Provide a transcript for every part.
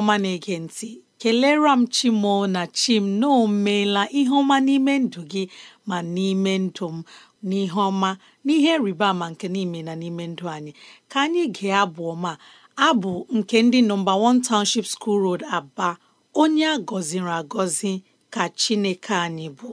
ọma na-ege ntị kelere m chimoo na chim na ihe ọma n'ime ndụ gị ma n'ime ndụ m n'ihe ọma n'ihe rịba ama nke n'ime na n'ime ndụ anyị ka anyị gee abụ ọma abụ nke ndị nọmba 1 Township School Road Aba onye a gọziri agọzi ka Chineke anyị bụ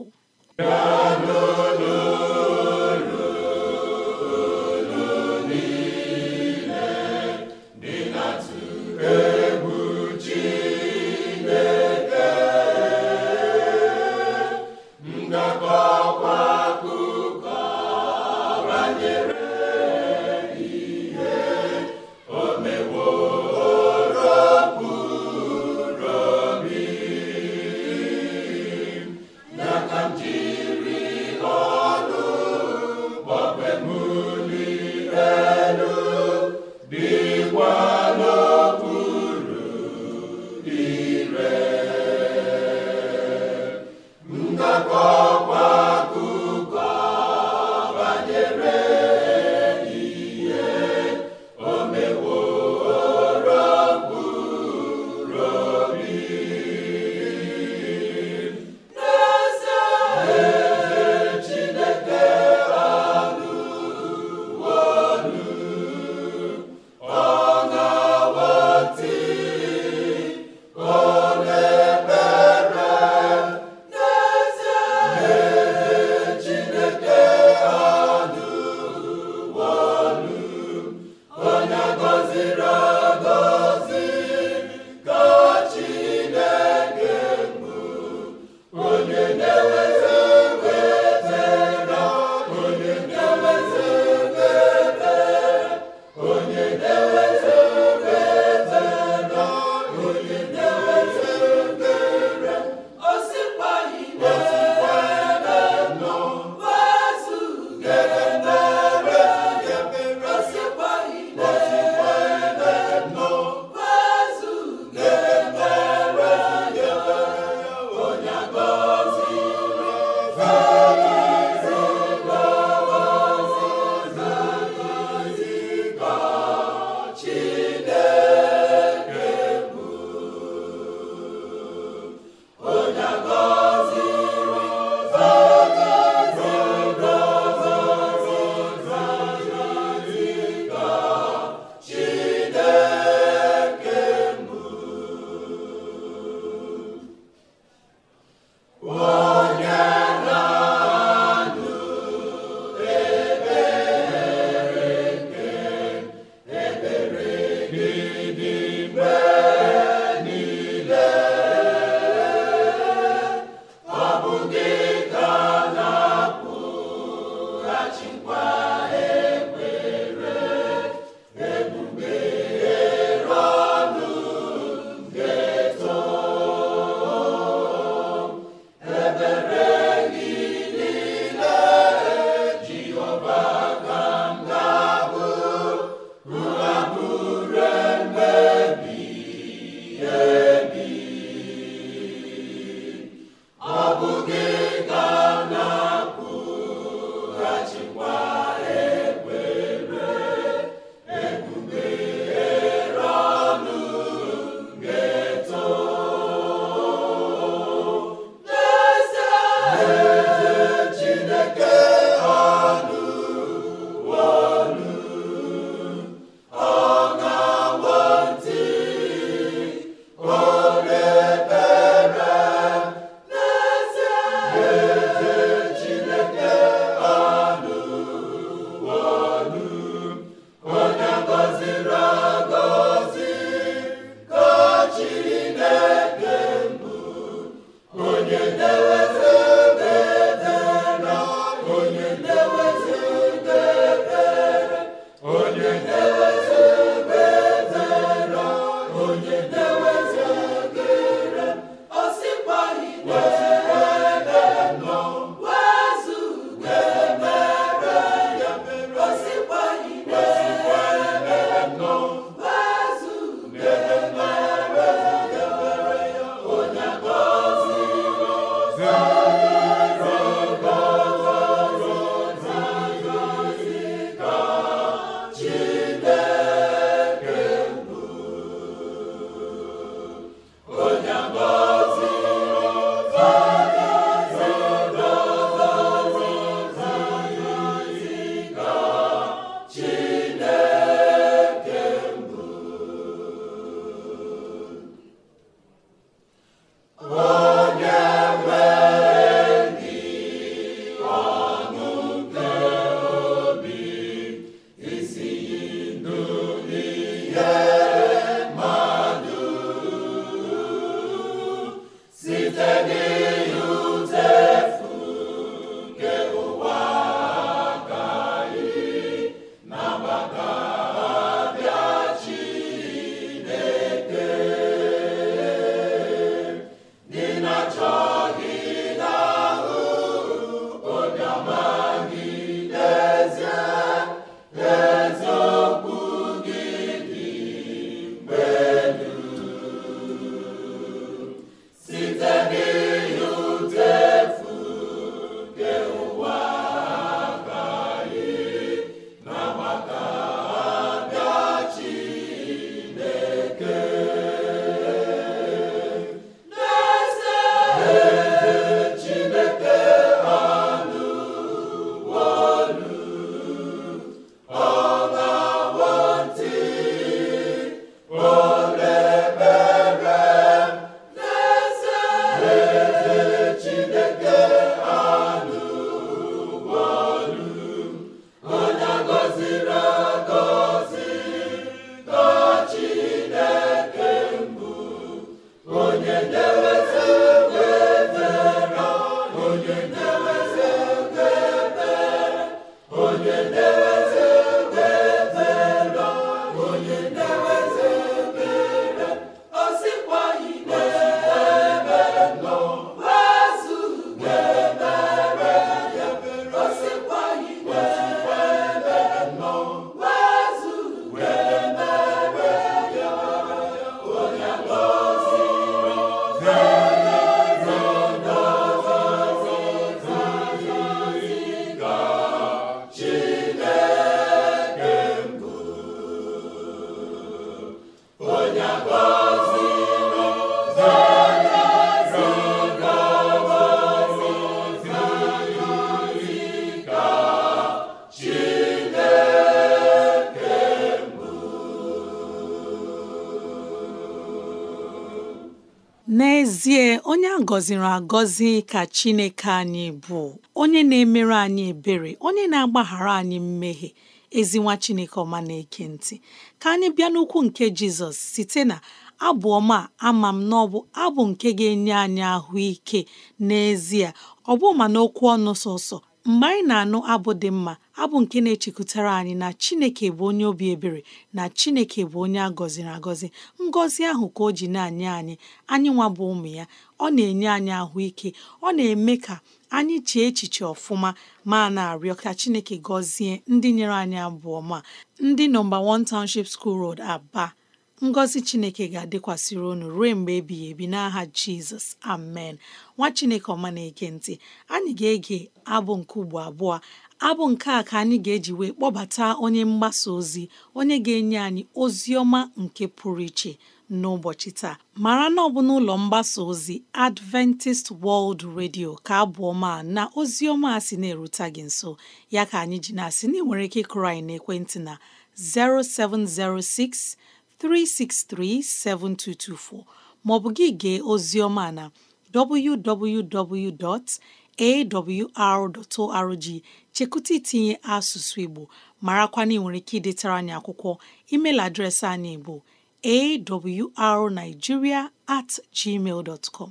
Hallelujah. gọziri agọzi ka Chineke anyị bụ onye na-emere anyị ebere onye na-agbaghara anyị mmehie ezi Chineke ọma na-eke ntị ka anyị bịa n'ukwu nke Jizọs site na abụọ ma ama m na abụ nke ga-enye anyị ahụike n'ezie ọ bụ ma n'okwu ọnụ sọsọ mgbe anyị na-anụ abụ dị mma abụ nke na-echekwutara anyị na Chineke bụ onye obi ebere na Chineke bụ onye a gọziri agọzi ngọzi ahụ ka o ji na anye anyị anyị nwa bụ ụmụ ya ọ na-enye anyị ahụike ọ na-eme ka anyị chee echiche ọfụma ma na-arịọ ka Chineke gọzie ndị nyere anyị abụ ọma ndị nọmba 1 Township School Road Aba ngọzi chineke ga-adịkwasịrị unu ruo mgbe ebighị ebi n'aha jizọs amen nwa chineke ọma na-eke ntị anyị ga-ege abụ nke ugbo abụọ abụ nke a ka anyị ga-eji wee kpọbata onye mgbasa ozi onye ga-enye anyị ozi ọma nke pụrụ iche n'ụbọchị taa mara na ọ bụ n'ụlọ mgbasa ozi Adventist World Radio ka abụọ ma na ozi ọma a sị na-erute gị nso ya ka anyị ji na-asị na ị nwere ike ịkụrụ anyị ekwentị na 0706 363 3637224 maọbụ gị gee oziọma na www.awr.org chekụta itinye asụsụ Igbo marakwana ị nwere ike idetara anyị akwụkwọ email adreesị anyị bụ awrnigeria at gmail dot com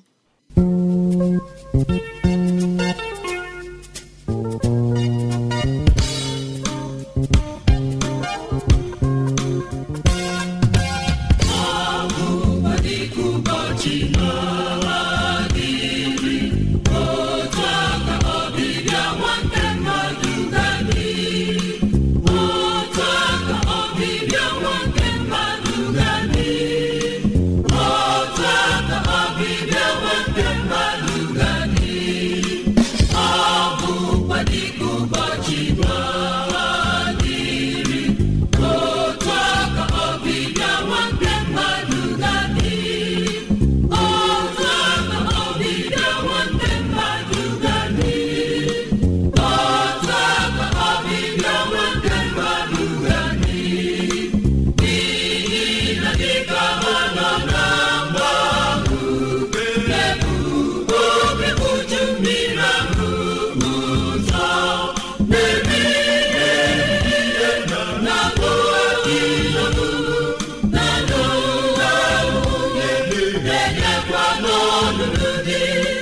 ọlụlụ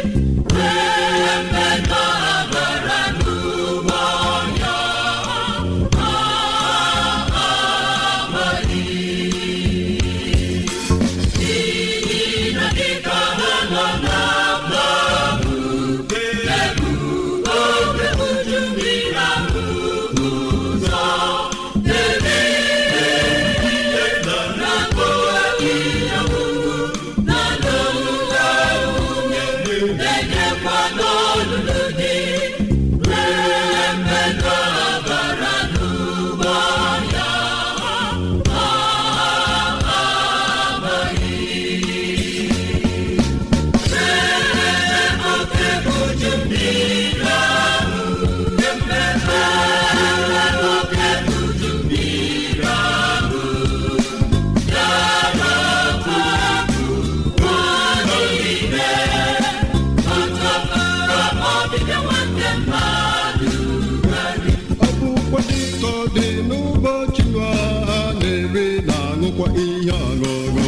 bụrụkwa ihe ọṅụṅụ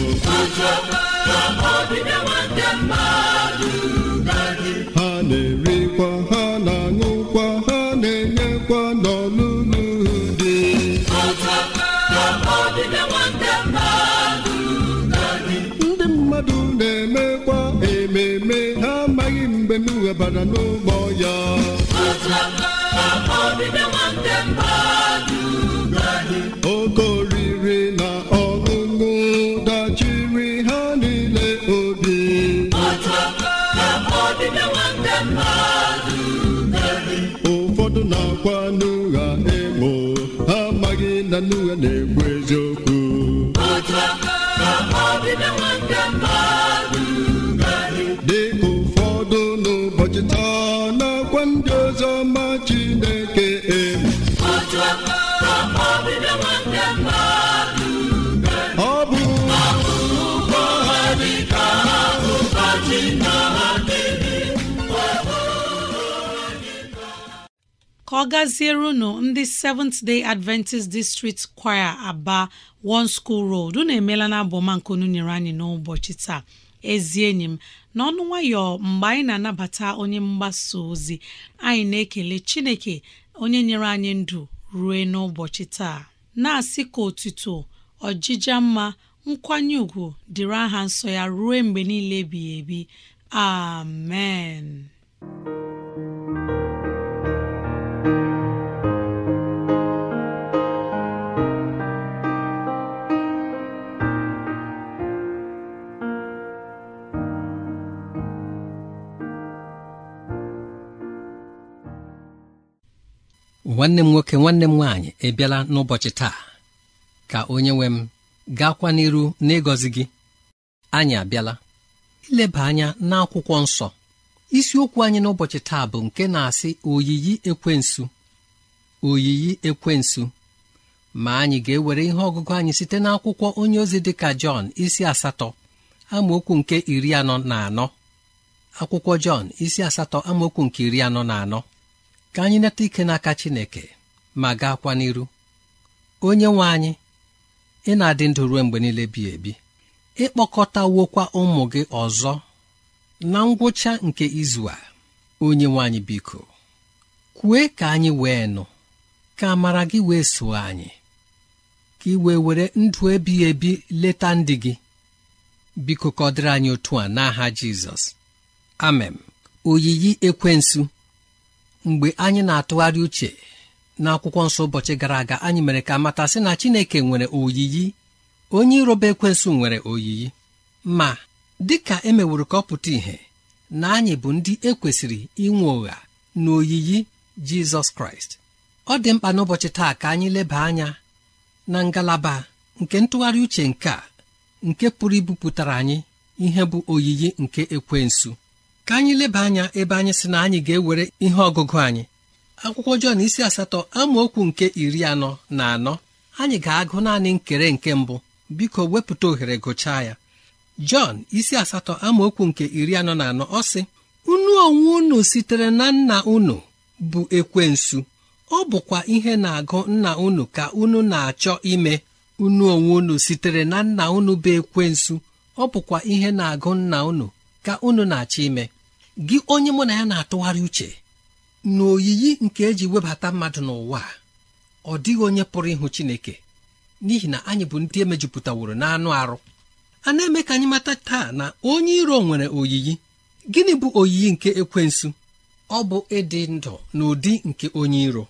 ha na-erikwa ha na-aṅụkwa ha na-enyekwa n'ọlụlụ dị ndị mmadụ na-emekwa ememe ha amaghị mgbe m ghebara n'ụgbọ ya okorie chere na ọgụgụ dachiri ha niile obi ụfọdụ na-akwa n'ụgha emo ha amaghị na n'ụgha na-ekwu eziokwu ọ gaziere ndị Seventh Day Adventist District Choir Aba One School Road unu emeela na nke unu nyere anyị n'ụbọchị taa ezi enyi m n'ọnụ nwayọ mgbe anyị na-anabata onye mgbasa ozi anyị na-ekele Chineke onye nyere anyị ndụ rue n'ụbọchị taa na-asị ka otuto ọjija mma nkwanye ùgwù dịrị aha nsọ ya ruo mgbe niile ebighị ebi amen nwanne m nwoke nwanne m nwaanyị ebiala n'ụbọchị taa ka onye nwe m gaakwa n'iru n'ịgọzi gị anyị abịala ileba anya n'akwụkwọ nsọ isiokwu anyị n'ụbọchị taa bụ nke na-asị oyiyi ekwensu oyiyi ekwensu ma anyị ga-ewere ihe ọgụgụ anyị site n'akwụkwọ onye ozi dịka Jọn isi asatọ amaokwu nke iri anọ na anọ akwụkwọ Jọn isi asatọ amaokwu nke iri anọ na anọ ka anyị neta ike n'aka Chineke ma gaakwa n'iru onye nwe anyị ị na-adị ndụ ruo mgbe niile bi ebi ịkpọkọtawokwa ụmụ gị ọzọ na ngwụcha nke izu a onye nwe anyị biko kwue ka anyị wee nụ ka amara gị wee so anyị ka ị wee were ndụ ebighị ebi leta ndị gị biko ka anyị otu a n'aha Jizọs amen oyiyi ekwensu mgbe anyị na-atụgharị uche n'akwụkwọ nsọ ụbọchị gara aga anyị mere ka mata sị na Chineke nwere oyiyi onye iroba ekwensu nwere oyiyi ma dị ka e meworo ka ọ pụta ìhè na anyị bụ ndị ekwesịrị inwe ụgha na oyiyi Jizọs Kraịst ọ dị mkpa n'ụbọchị taa ka anyị leba anya na ngalaba nke ntụgharị uche nke a nke pụrụ ibupụtara anyị ihe bụ oyiyi nke ekwensu ka anyị leba anya ebe anyị sị na anyị ga-ewere ihe ọgụgụ anyị akwụkwọ Jọn isi asatọ amaokwu nke iri anọ na anọ anyị ga-agụ naanị nkere nke mbụ biko wepụta ohere gụchaa ya Jọn isi asatọ amaokwu nke iri anọ na anọ ọ sị unu onwe unu sitere na nna unu bụ ekwensu ọ bụkwa ihe na-agụ nna unu ka unu na-achọ ime unu onwe unu sitere na nna unu bụ ekwensu ọ bụkwa ihe na-agụ nna unu ka unu na-achọ ime gị onye mụ na ya na-atụgharị uche na oyiyi nke eji webata mmadụ n'ụwa ọ dịghị onye pụrụ ịhụ Chineke n'ihi na anyị bụ ndị emejupụtaworo n'anụ arụ a na-eme ka anyị mata taa na onye iro nwere oyiyi gịnị bụ oyiyi nke ekwensu ọ bụ ịdị ndụ n'ụdị nke onye iro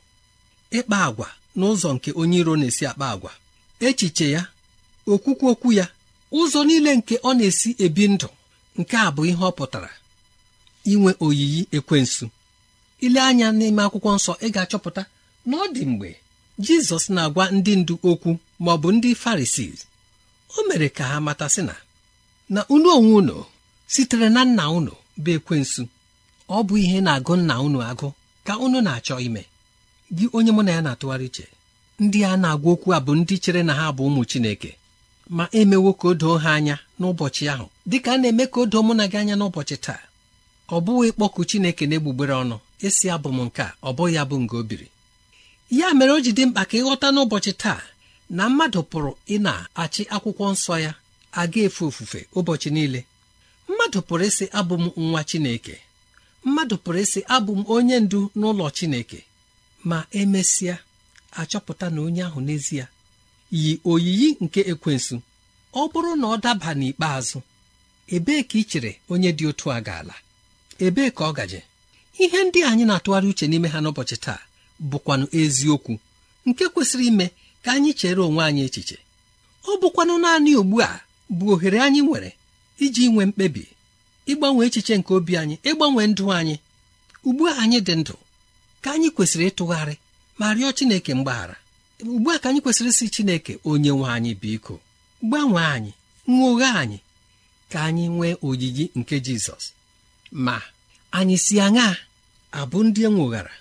ịkpa agwa n'ụzọ nke onye iro na-esi akpa agwa echiche ya okwukwu okwu ya ụzọ niile nke ọ na-esi ebi ndụ nke a bụ ihe ọ pụtara inwe oyiyi ekwensu ile anya n'ime akwụkwọ nsọ ị ga-achọpụta na ọ dị mgbe jizọs na-agwa ndị ndu okwu ma ọ bụ ndị farisii o mere ka ha matasị na na unu onwe unu sitere na nna unu bụ ekwensu ọ bụ ihe na-agụ nna unu agụ ka unu na-achọ ime gị onye mụ na ya na-atụgharị iche ndị a na-agwa okwu a bụ ndị chere na ha bụ ụmụ Chineke ma emewo ka o doo ha anya n'ụbọchị ahụ dịka a na-eme ka o doo mụ na gị anya n'ụbọchị taa ọ bụghị ịkpọku chineke na-egbugbere ọnụ esi abụ m nke a ọ bụghị ya bụ o biri ya mere o ji dị mkpa ka ịghọta n'ụbọchị taa na mmadụ pụrụ ịna achị akwụkwọ nsọ ya aga efe ofufe ụbọchị niile mmadụ pụrụ ịsị abụ m nwa chineke mmadụ pụrụ ịsị abụ m onye ndu n'ụlọ chineke ma emesịa achọpụta na onye ahụ n'ezie yi oyiyi nke ekwensu ọ bụrụ na ọ daba n'ikpeazụ ebee ka ị chere onye dị otu a ga-ala ebee ka ọ gaje ihe ndị anyị na-atụgharị uche n'ime ha n'ụbọchị taa bụkwanụ eziokwu nke kwesịrị ime ka anyị chere onwe anyị echiche ọ bụkwanụ naanị ugbu a bụ ohere anyị nwere iji nwee mkpebi ịgbanwe echiche nke obi anyị ịgbanwe ndụ anyị ugbu a anyị dị ndụ ka anyị kwesịrị ịtụgharị ma rịọ Chineke mgbaghara ugbu a ka anyị kwesịrị isi Chineke onye nwe anyị biko gbanwee anyị nwoghe anyị ka anyị nwee oyiyi nke Jizọs ma anyị si aṅa abụ ndị enwoghara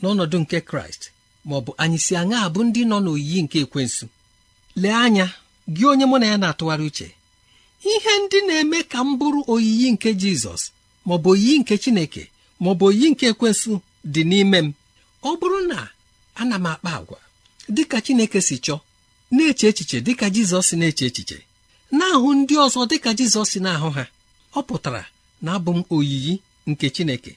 n'ọnọdụ nke kraịst ma ọ bụ anyị si aṅa abụ ndị nọ n'oyiyi nke ekwensu lee anya gị onye mụ na ya na-atụgharị uche ihe ndị na-eme ka m bụrụ oyiyi nke jizọs ma ọ bụ oyiyi nke chineke ma ọ bụ oyiyi nke ekwensu dị n'ime m ọ bụrụ na ana m akpa agwa dịka chineke si chọọ na-eche echiche dịka jizọs na-eche echiche na-ahụ ndị ọzọ dịka jizọs na-ahụ ha ọ pụtara na-abụ m oyiyi nke Chineke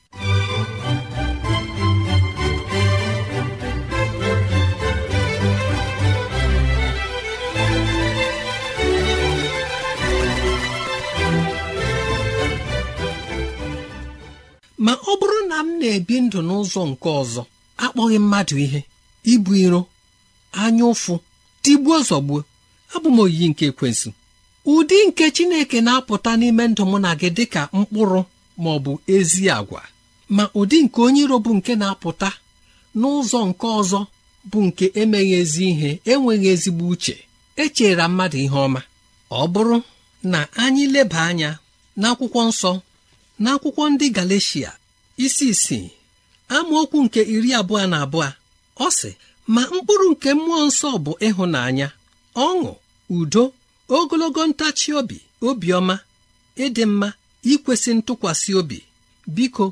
ma ọ bụrụ na m na-ebi ndụ n'ụzọ nke ọzọ akpọghị mmadụ ihe ibu iro anya ụfụ tigbuo zọgbuo abụ m oyiyi nke ekwensu ụdị nke chineke na-apụta n'ime ndụ mụ na gị dịka mkpụrụ ma ọ bụ ezi àgwà, ma ụdị nke onye iro bụ nke na-apụta n'ụzọ nke ọzọ bụ nke emeghị ezi ihe enweghị ezigbo uche echera mmadụ ihe ọma ọ bụrụ na anyị leba anya n'akwụkwọ nsọ n'akwụkwọ ndị Galeshia isi isii amaokwu nke iri abụọ na abụọ ọ sị ma mkpụrụ nke mmụọ nsọ bụ ịhụnanya ọṅụ udo ogologo ntachi obi obiọma ịdị mma ikwesị ntụkwasị obi biko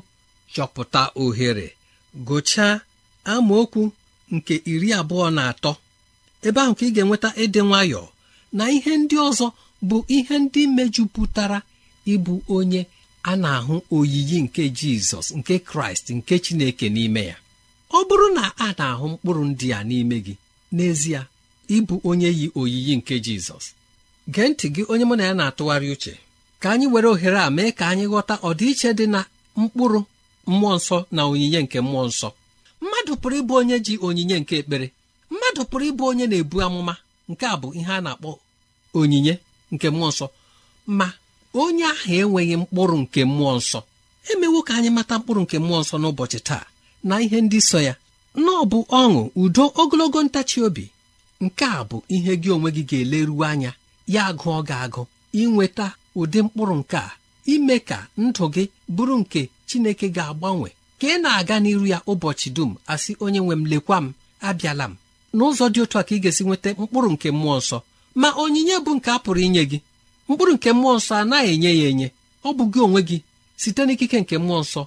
chọpụta ohere gụchaa amaokwu nke iri abụọ na atọ ebe ahụ ka ị ga-enweta ịdị nwayọọ na ihe ndị ọzọ bụ ihe ndị mejupụtara ịbụ onye a na-ahụ oyiyi nke jizọs nke kraịst nke chineke n'ime ya ọ bụrụ na a na-ahụ mkpụrụ ndị a n'ime gị n'ezie ịbụ onye yi oyiyi nke jizọs gee ntị gị onye mụ na ya na-atụgharị uche ka anyị were ohere a mee ka anyị ghọta ọdịiche dị na mkpụrụ mmụọ nsọ na onyinye nke mmụọ nsọ mmadụ pụrụ ịbụ onye ji onyinye nke ekpere mmadụ pụrụ ịbụ onye na-ebu amụma nke a bụ ihe a na-akpọ onyinye nke mmụọ nsọ ma onye ahụ enweghị mkpụrụ nke mmụọ nsọ emewo ka anyị mata mkpụrụ nke mmụọ nsọ n'ụbọchị taa na ihe ndị so ya na ọ bụ ọṅụ udo ogologo ntachi obi nke a bụ ihe gị onwe gị ga-eleruo anya ya ọ gị agụ inweta ụdị mkpụrụ nke a ime ka ndụ gị bụrụ nke Chineke ga-agbanwe ka ị na-aga n'iru ya ụbọchị dum asị onye nwe m lekwa m abịala m n'ụzọ dị otu a ka ị ga-esi nweta mkpụrụ nke mmụọ nsọ ma onyinye bụ nke a pụrụ inye gị mkpụrụ nke mmụọ nsọ anaghị enye ya enye ọ bụ gị onwe gị site n'ikike nke mmụọ nsọ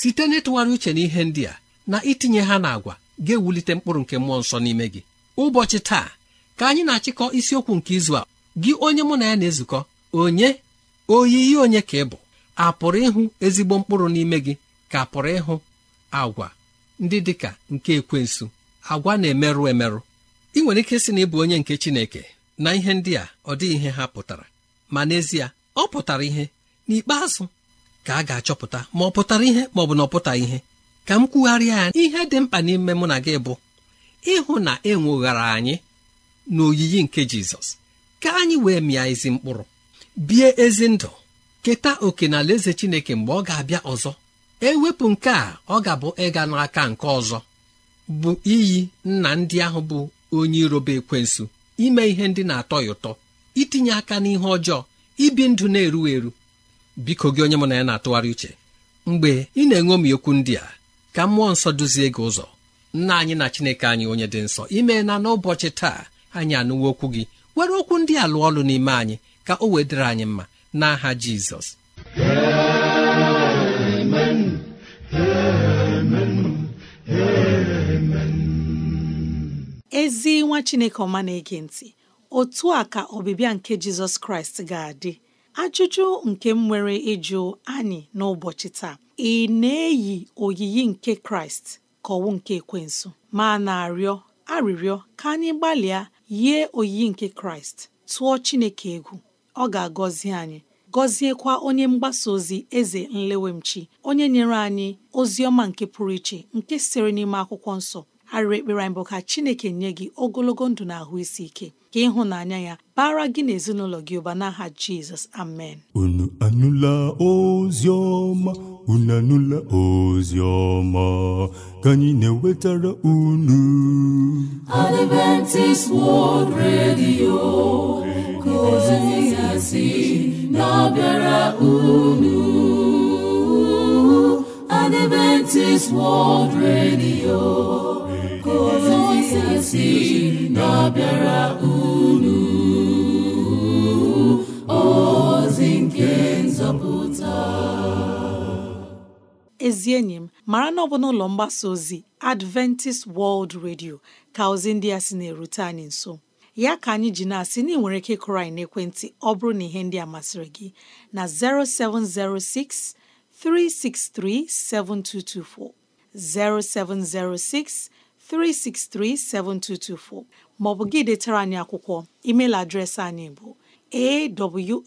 site n'ịtụgharị uche na ihe ndị a na itinye ha n'agwa ga-ewulite mkpụrụ nke mmụọ nsọ n'ime gị ụbọchị taa ka anyị na-achịkọ isiokwu nke izu a gị onye mụ na ya na-ezukọ onye oyiyi onye ka ị bụ a pụrụ ịhụ ezigbo mkpụrụ n'ime gị ka pụrụ ịhụ agwa ndị dị ka nke ekwensu agwa na-emerụ emerụ ị nwere ike sị na ịbụ onye nke Chineke na ihe ndị a ọ dịghị ihe ha pụtara ma n'ezie ọ pụtara ihe n'ikpeazụ ka a ga-achọpụta ma ọ pụtara ihe ma ọ bụ na ọ ihe ka m kwugharịa ya ihe dị mkpa n'ime mụ na gị bụ ịhụ na e nweghara anyị n'oyiyi nke Jizọs ka anyị wee mịa ezi mkpụrụ bie ezi ndụ keta oke na alaeze chineke mgbe ọ ga-abịa ọzọ ewepụ nke a ọ ga-abụ ịga n'aka nke ọzọ bụ iyi nna ndị ahụ bụ onye irobe ekwensu ime ihe ndị na-atọ ya ụtọ itinye aka n'ihe ọjọọ ibi ndụ na-eru eru biko gị onye mụ na ya na-atụgharị uche mgbe ị na-enwe okwu ndị a ka mmụọ nsọ duzie gị ụzọ nna anyị na chineke anyị onye dị nsọ imeela n'ụbọchị taa anyị anụwa okwu gị were okwu ndị a lụọ ọlụ n'ime anyị ka o wedịre anyị mma n'aha jizọs ezi nwa chineke ọma na-ege ntị otu a ka ọbịbịa nke jizọs kraịst ga-adị ajụjụ nke m nwere ịjụ anyị n'ụbọchị taa ị na-eyi oyiyi nke kraịst ka ọwụ nke ekwensu ma na-arịọ arịrịọ ka anyị gbalịa yie oyiyi nke kraịst tụọ chineke egwu ọ ga-agọzi anyị gọziekwa onye mgbasa ozi eze nlewemchi onye nyere anyị ozi ọma nke pụrụ iche nke siri n'ime akwụkwọ nsọ arịrị ekpere anyị bụ ka chineke nye gị ogologo ndụ na ahụ isi ike ka ịhụnanya ya bara gị na ezinụlọ gị ụba n'aha jizọs amen unu anụla ozi ọma unu anụla ozi ọma ka anyị na-ewetara unu Adventist World Radio ka ozi ya si na-abịara unu Adventist World Radio si na-abịara unu ozi nke nzọpụta ezi enyi m mara na ọ bụ n'ụlọ mgbasa ozi Adventist World Radio ka ozi ndị a sị na-erute anyị nso ya ka anyị ji na-asị na ị nwere ike ịkụrụ anyị n'ekwentị ọ bụrụ na ihe ndị a masịrị gị na 0706 363 7224 0706 363 3637224 maọbụ gị detara anyị akwụkwọ email adreesị anyị bụ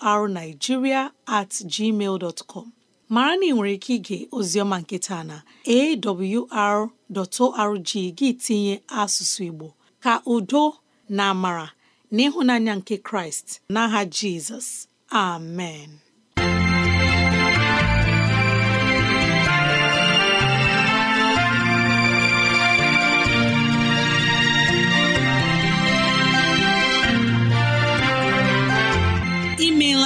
awrnigeria at gmail dot com mara na ị nwere ike ige oziọma nke taa na awr.org gị tinye asụsụ Igbo ka udo na amara na ịhụnanya nke Kraịst n'aha Jizọs amen